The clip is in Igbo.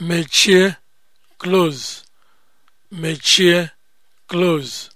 mechie close mechie close